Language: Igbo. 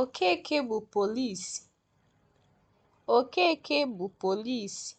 Okeke bụ polisi. Okeke bụ polisi.